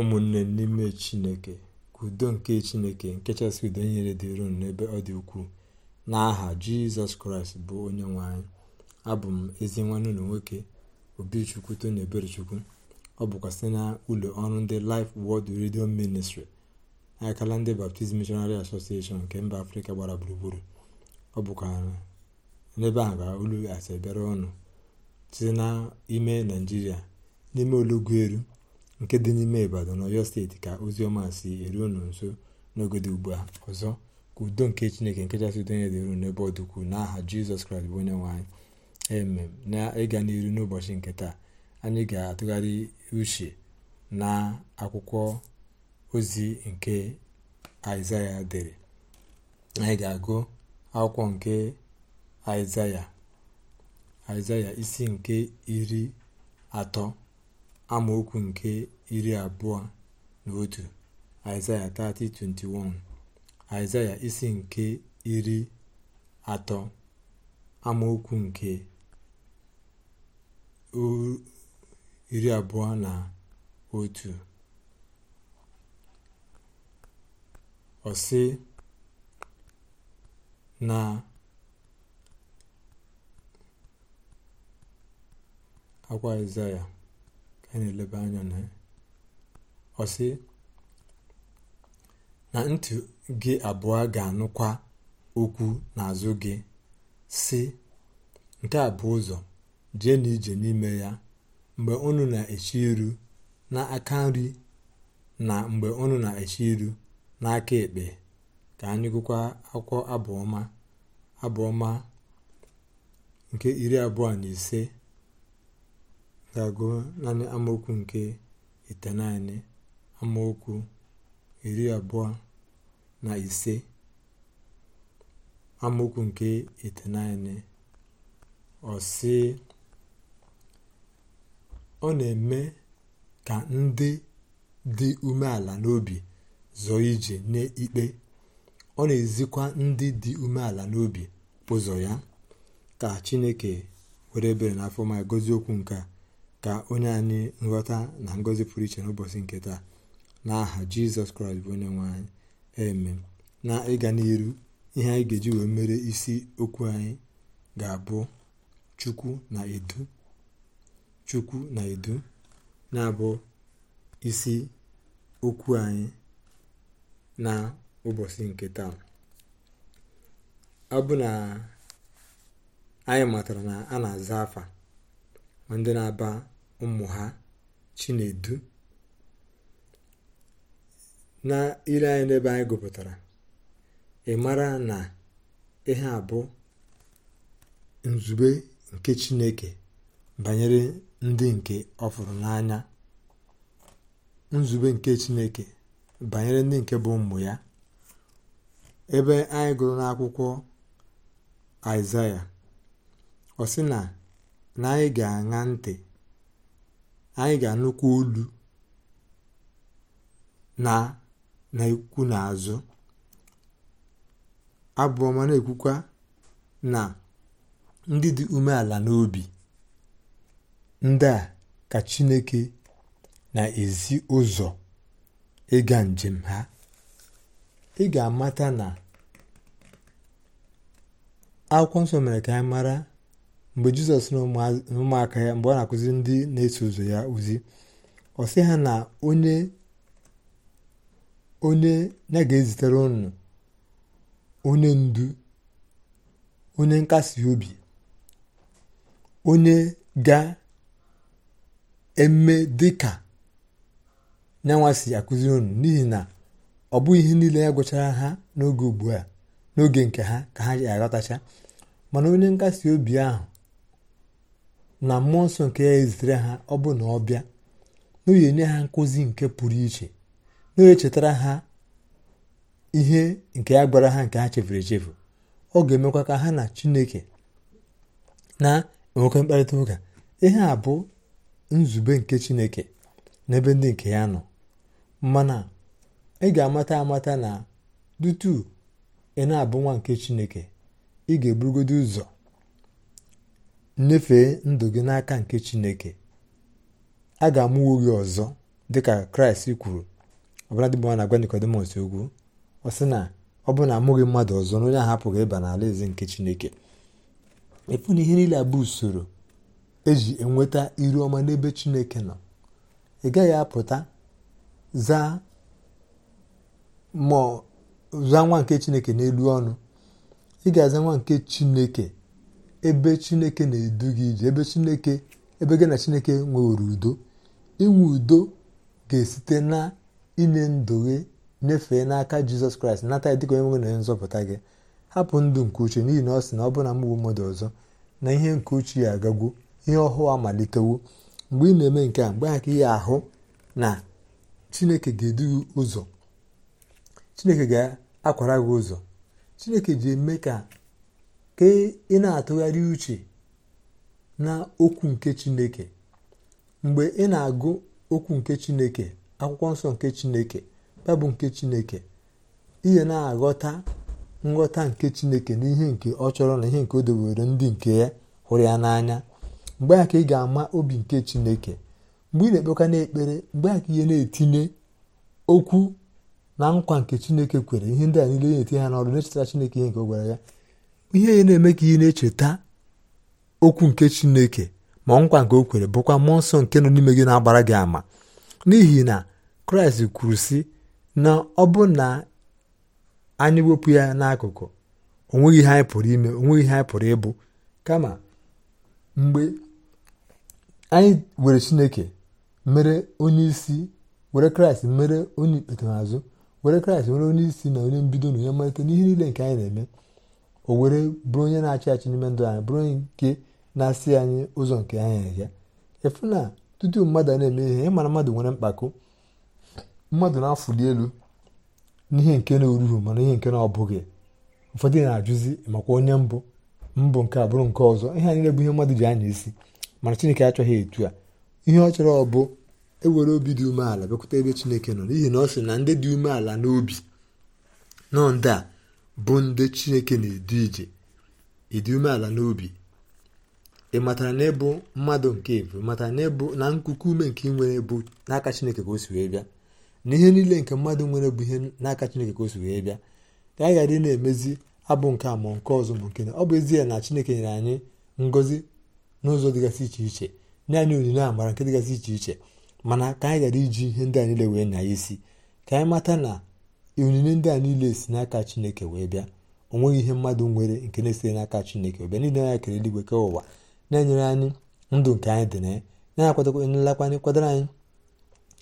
ụmụnne n'ime chineke ka udo nke chineke nke chasị udo nyere dịron n'ebe ọ dị ukwuu n'aha jizọs kraịst bụ onye nwanyị abụ m ezi nwanne ụlọ nwoke obichukwu tony eberechukwu ọ bụkwa site na ụlọ ọrụ ndị Life Word redio ministri akala ndị Baptist Missionary Association nke mba afrịka gbara gburugburu ọ bụkwa n'ebe ahụ ka olu asị bịara ọnụ site n'ime naijiria n'ime olugweru nke dị n'ime ibadan ọyọ steeti ka ozi ọma si eru unu nso n'oge dị ugbu a ọzọ ka udo nke chineke nke chasị udo dị uru n'ebe ọ dịkwu n'aha jizọs kraịst bụ onye nwanyị eme emem na ịga n'iru n'ụbọchị nke taa anyị ga-atụgharị uche na akwụkwọ ozi nke aịzaya dere anyị ga-agụ akwụkwọ nke aịzaya aịzaya isi nke iri atọ amaokwu nke iri abụọ na otu aịzaya 30:21 aịzaya isi nke iri atọ amaokwu nke iri abụọ na otu ọsị na akwa aịzaya anyị na anya na na ntị gị abụọ ga-anụkwa okwu n'azụ gị si nke a bụ ụzọ jee na n'ime ya mgbe unu na-echi iru aka nri na mgbe unu na-echi iru n'aka ekpe ka anyị gụkwa akwụkwọ abụọma abụọma nke iri abụọ na ise ga-agụ naanị amaokwu nke itenaịnị amaokwu iri abụọ na ise amaokwu nke itenaịnị ọ ọ na-eme ka ndị dị umeala n'obi zọọ ije n'ikpe ọ na-ezikwa ndị dị umeala n'obi ụzọ ya ka chineke were ebere n'afọ ma gozie okwu nke a ka onye anyị nghọta na ngọzi pụrụ iche n'ụbọchị nke taa n'aha jizọs kraịst bụ onye nwe anyị eme na ịga n'iru ihe anyị ga-eji wee mere isi okwu anyị ga-abụ chukwu na edu chukwu na edu na-abụ isi okwu anyị na ụbọchị nke taa ọ bụ na anyị matara na a na-aza afa ma ndị na-aba ụmụ ha chinedu na ire anyị n'ebe anyị gụpụtara ị mara na ihe a bụ nzube nke chineke banyere ndị nke ọ n'anya nzube nke chineke banyere ndị nke bụ ụmụ ya ebe anyị gụrụ n'akwụkwọ aịsaịa ọ sị na na anyị ga-aṅa ntị anyị ga-anụkwa olu na na n'azụ abụọ mana abụọma na-ekwukwa na ndị dị umeala n'obi ndị a ka chineke na-ezi ụzọ ịga njem ha ị ga-amata na akwụkwọ nsọ mere ka anyị mara mgbe jizọs na ụmụaka ya mgbe ọ na akụzi ndị na-eso ụzọ ya ozi ọ sị ha na onye onye ya ga-ezitere unu onye ndu onye nkasi obi onye ga-eme dịka nyanwa si akụziri unu n'ihi na ọ bụghị ihe niile ya gwụchara ha n'oge ugbu a n'oge nke ha ka ha ga aghọtacha mana onye nkasi obi ahụ na mmụọ nke ya ezitere ha ọ bụ na ọ bịa na ha nkụzi nke pụrụ iche na chetara ha ihe nke ya gbara ha nke ha chefuru echefu ọ ga-emekwa ka ha na chineke na-enwekwa mkparịta ụka ihe a bụ nzube nke chineke n'ebe ndị nke ya nọ mana ị ga-amata amata na dutu ị na-abụ nwa nke chineke ị ga-eburugodo ụzọ nyefee ndụ gị n'aka nke chineke a ga-amụwo gị ọzọ dịka kraịst kwuru ọbụladịbụwa na-agwa nikodimọs okwu ọ sị na ọ bụ na amụghị mmadụ ọzọ na onye ahụ ịba n'ala eze nke chineke efu na ihe niile bụ usoro eji enweta iru ọma n'ebe chineke nọ ị gaghị apụta zaa zaa nwa nke chineke n'elu ọnụ ị ga-aza nwa nke chineke ebe chineke na-edu gị ije ebe chineke ebe gị na chineke nwewere udo inwe udo ga-esite na inye ndụ gị nyefee n'aka jizọs kraịst nata ya dịka onye nwe na nzọpụta gị hapụ ndụ nke uche n'ihi na ọ sị na ọ bụla na mgbe mmadụ ọzọ na ihe nke uche ya agagwo ihe ọhụụ amalitewo mgbe ị na-eme nke a mgbe ha ka ihe ahụ na chineke ga-edu gị ụzọ chineke ga-akwara gị ụzọ chineke ji eme ka ka ị na-atụgharị uche na okwu nke chineke mgbe ị na-agụ okwu nke chineke akwụkwọ nsọ nke chineke babụ nke chineke ihe na-aghọta nghọta nke chineke na ihe nke ọ chọrọ na ihe nke o debere ndị nke ya hụrụ ya n'anya mgbe ka ị ga-ama obi nke chineke mgbe ị na-ekpeka n'ekpere mgbe a ka ihe na-etinye okwu na nkwa nke chineke kwere ihe ndị a niile na-etinye ha n'ọrụ na-echetara chineke ihe nke ọ gwara ya ihe ya na-eme ka ị na-echeta okwu nke chineke ma nkwa nke o kwere bụkwa mmụọ nsọ nke nọ n'ime gị na-agbara gị ama n'ihi na kraịst kwuru sị na ọ bụ na anyị wepụ ya n'akụkụ onweghị ihe anyị pụrụ ime onweghị ihe anyị pụrụ ịbụ kama mgbe anyị were chineke mere onye isi were kraịst mere onye ikpete were kraịst were onye isi na onye mbido na onye mmalite n'ihe niile nke anyị na-eme o were bụrụ onye na-achị achị n'ime ndụ anyị bụrụ onye nke na-asị anyị ụzọ nke anyị ya efu na tutu mmadụ a na-eme ihe ịmara mmadụ nwere mkpako mmadụ na-afụli elu n'ihe nke na-eruru mana ihe nke na ọbụghị ụfọdụ na-ajụzi makwa onye mbụ mbụ nke a bụrụ nke ọzọ ihe anyị bụ ihe mmadụ ji anya isi mana chineke achọghị etu a ihe ọ chọrọ ọ bụ ewere obi dị umeala bịakwute ebe chineke nọ n'ihi na ọ sị na ndị dị umeala n'obi nọ ndị a bụ ndị chineke na-edu ije ịdị umeala n'obi ị matara na ịbụ mmadụ nke ebu matara na ịbụ na nkuku ume nke ị nwere bụ n'aka chineke ka o si wee bịa na ihe niile nke mmadụ nwere bụ ihe n'aka chineke ka o si wee bịa ka anyị ghara ị na-emezi abụ nke a nke ọzọ bụ nke na ọ bụ ezie na chineke nyere anyị ngọzi n'ụzọ dịgasị iche iche nye anyị onyinye amara nke dịgasị iche iche mana ka anyị ghara iji ihe ndị anyị niile wee nya ya isi ka anyị mata na onyinye ndị a niile si n'aka chineke wee bịa o nweghị ihe mmadụ nwere nke na-esite n'aka chineke wee bịa niile anya kere eluigwe ke ụwa na-enyere anyị ndụ nke anyị dị na ya na-akwadokwanyị kwadoro anyị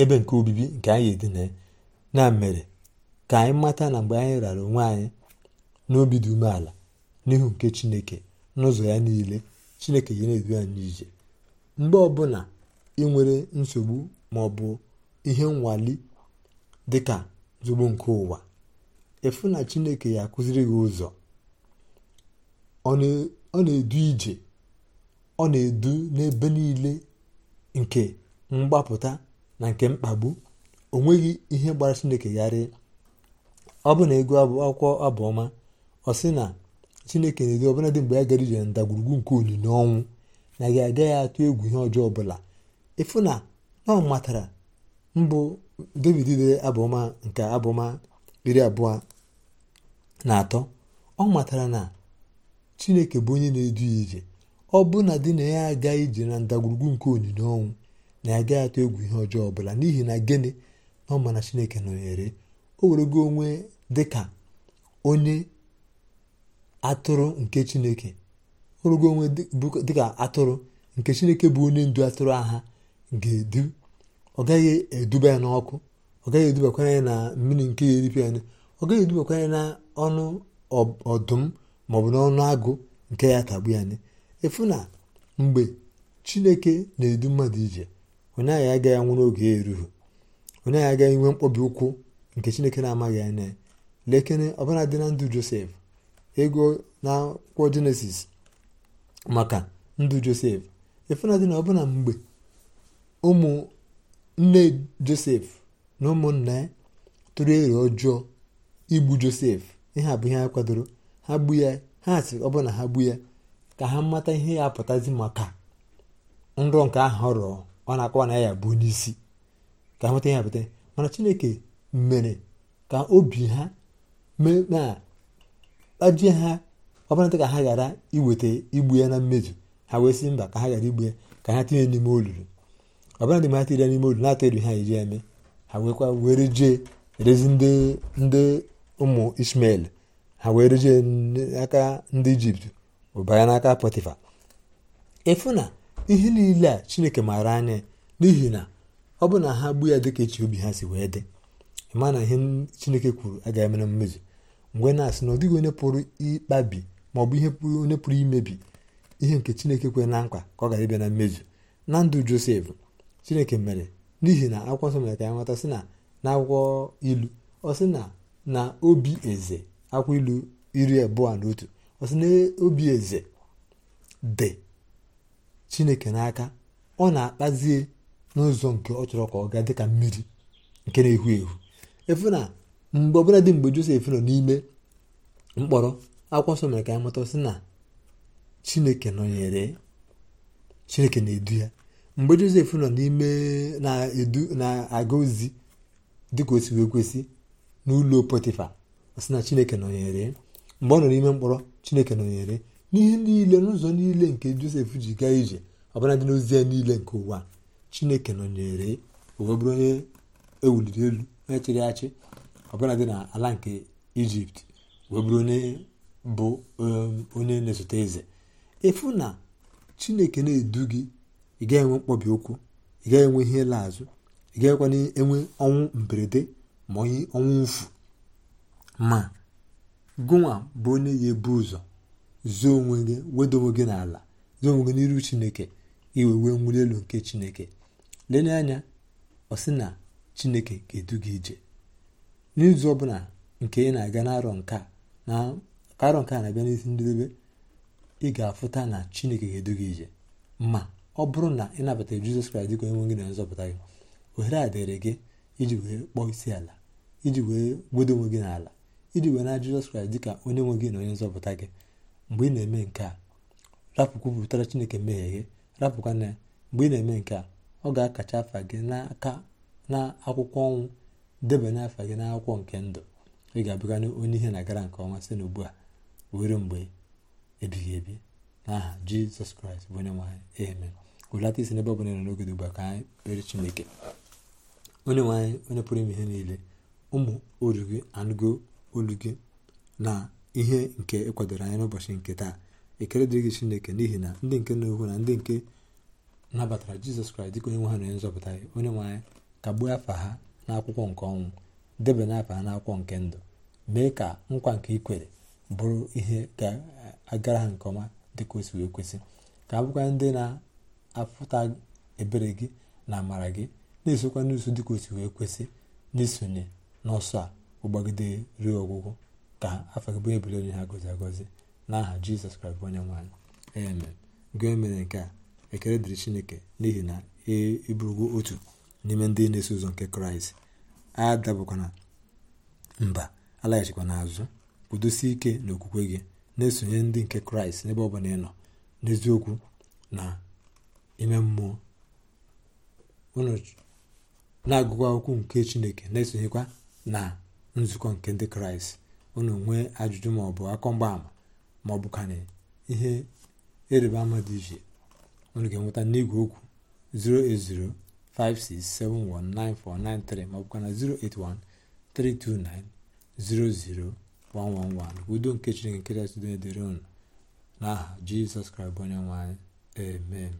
ebe nke obibi nke anyị dị na ya na mere ka anyị mata na mgbe anyị rara onwe anyị n'obi dị umeala n'ihu nke chineke n'ụzọ ya niile chineke ga na-edu anyị n'ije mgbe ọbụla ị nwere nsogbu ma ọ bụ ihe nwali dịka zugbo nke ụwa efu na chineke ya akụziri gị ụzọ ọ na-edu ije ọ na-edu n'ebe niile nke mgbapụta na nke mkpagbu o nweghị ihe gbara chineke gharị ọ bụ na ego akwụkwọ abụọma ọ sị na chineke na-edu ọbụla dị mgbe ya gara ije na ndagwurugwu nke olili ọnwụ na gị agaghị atụ egwu ihe ọjọọ ọbụla ịfụ na ọ matara mbụ david dere abụma nke abụma iri abụọ na atọ ọ matara na chineke bụ onye na-edu ya ije ọ bụ na di na ya agaghị ije na ndagwurugwu nke onyinye ọnwụ na ya agaghị atụ egwu ihe ọjọọ ọbụla n'ihi na gịnị na ọ ma na chineke nọnyere o werego onwe dịka onye atụrụ nke chineke onwe dịka atụrụ nke chineke bụ onye ndu atụrụ agha ga-edu ọ gaghị eduba ya n'ọkụ ọ gaghị edubakwa ya na mmiri nke eripịa anya ọ gaghị edubakwa ya na ọnụ ọdụm maọbụ n'ọnụ agụ nke ya tagbu ya anya efu na mgbe chineke na-edu mmadụ ije onye agha ya agaghị anwụrụ n'oge ya erughị onye agha agaghị nwe mkpọbi ụkwụ nke chineke na-amaghị anya ya lekere ọbụla dị na ndụ josef ego na akwụkwọ jenesis maka ndụ josef efu na dị na ọbụna mgbe ụmụ nne josef na ụmụnna ya tụrụ ero ọjọọ igbu josef ihe a bụ ihe ha kwadoro ha gbu ya ha sịrị ọ bụrụ na ha gbu ya ka ha mata ihe ya pụtazi maka nrọ nke ahụ ọ ọ na-akọwa na ya bụ onye isi ka ha mata ihe apụta mana chineke mere ka obi ha na kpajie ha ọbụladị ka ha ghara iweta igbu ya na mmeju ha wee sị mba ka ha ghara igbu ya ka ha tinye n'ime olulu ọbụla dị mata ire n'ime olu na-atọ elu ha eji eme ha nwekwa were jee erezi ndị ụmụ ismael ha were jee n'aka ndị ijipt ụbara n'aka pọtịfa ịfụ na ihe niile a chineke maara anya n'ihi na ọ bụ na ha gbu ya dịka echi obi ha si wee dị ịma na ihe chineke kwuru a ga na mmezu mgbe na-asị na ọ dịghị onye pụrụ ịkpabi ma ọ bụ ihe onye pụrụ imebi ihe nke chineke kwere na nkwa ka ọ gara ịbịa na mmezu na ndụ josef chineke mere n'ihi na akwụkwọ nsọ mere ka ya nweta sị na n'akwụkwọ ilu ọ sị na na obi eze akwụkwọ ilu iri abụọ na otu ọ sị na obi eze dị chineke n'aka ọ na-akpazie n'ụzọ nke ọ chọrọ ka ọ gaa dịka mmiri nke na-ehu ehu efu na mgbe ọbụla dị mgbe josef nọ n'ime mkpọrọ akwụkwọ nsọ mere ka ya mụta sị na chineke nọnyere chineke na-edu ya mgbe josef nọ n'ime na-aga ozi dịka o si wee kwesị n'ụlọ pọtịfa sị na chineke nọnyere mgbe ọ nọ n'ime mkpọrọ chineke nọnyere n'ihe niile n'ụzọ niile nke josef ji gaa ije ọbụla dị n'ozi ya niile nke ụwa chineke nọnyere o onye ewuliri elu onye chịrị achị ọbụla dị na ala nke ijipt wee onye bụ um, onye na-esote eze efu na chineke na-edu gị ị ga-enwe mkpọbi ụkwụ ị gaghị enwe ihe ịla azụ ị gaghịkwana enwe ọnwụ mberede ma onye ọnwụ mfu ma gụnwa bụ onye ga-ebu ụzọ zuo onwe gị wedo onwe gị n'ala zoo onwe gị n'iru chineke iwe wee nwuli elu nke chineke lenye anya ọ sị na chineke ga-edu gị ije n'izu ọbụla nke ị na-aga n'arọ nke na arọ nke na-abịa n'isi ndị ị ga-afụta na chineke ga-edu gị ije ma ọ bụrụ na ị nabata jizọs kraịst dịka onye nwe gị na nzọpụta gị ohere a dịrị gị iji wee kpọọ isi ala iji wee gbudo onwe gị n'ala iji wee na jizọs kraịst dịka onye nwe gị na onye nzọpụta gị mgbe ị na-eme nke a rapụkwupụtara chineke mmehie gị rapụkwana ya mgbe ị na-eme nke a ọ ga-akacha afa gị n'aka na akwụkwọ ọnwụ debanye afa gị n'akwụkwọ nke ndụ ị ga-abụgana onye ihe na-agara nke ọma site n'ugbu a were mgbe ebighị ebi n'aha jizọs kraịst bụ onye nwe amen hụlata isi n'ebe ọbụla nọ n'oge dị ugbu a ka anyị kpere chineke onye nwe anyị onye pụrụ ime ihe niile ụmụ oru gị anụgo olu gị na ihe nke ịkwadoro anyị n'ụbọchị nke taa ekele dịrị gị chineke n'ihi na ndị nke na-ekwu na ndị nke nabatara jizọs kraịst dịka onye nwe ha na onye nzọpụta ya onye nwe anyị kagbuo afa ha n'akwụkwọ nke ọnwụ debanye afa ha n'akwụkwọ nke ndụ mee ka nkwa nke ikwere bụrụ ihe ga-agara ha nke ọma dịka o si wee kwesị ka abụkwa ndị na afụta ebere gị na amara gị na-esokwa n'ụsọ dị ka o si wee kwesị n'isonye n'ọsọ a ụgbagide ruo ọgwụgwụ ka afọ gị bụ ebere onye ha gọzi agọzi n'aha jizọs kraịst onye nwaanyị amen gị mere nke a ekele dịrị chineke n'ihi na ịbụrụgo e otu n'ime ndị na-eso ụzọ nke kraịst adabụkwana mba alaghachikwa n'azụ kwudosie ike n'okwukwe gị na-esonye ndị nke kraịst n'ebe ọ bụla ị nọ n'eziokwu na ime mmụọ unu na-agụkwa okwu nke chineke na-esonyekwa na nzukọ nke ndị kraịst unu nwee ajụjụ maọbụ akọ mgbaama maọbụ ka na ihe ịrịba ama dị iche unu ga-enweta n'igwe okwu 08056719493 ka na 08132900111 udo nke chineke nke kachasị done dịrị unu n'aha jizọs kraịst onye nwanyị.